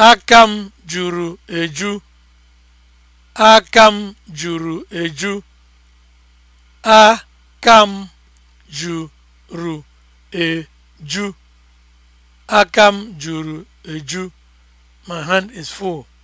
Aka m juru eju. Aka m juru eju. Aka m juru eju. Aka m juru eju. My hand is full.